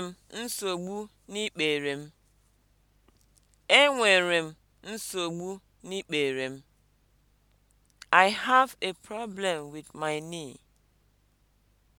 Enwere m nsogbu n'ikpere m. Enwere nsogbu n'ikpere m. I have a problem with my knee.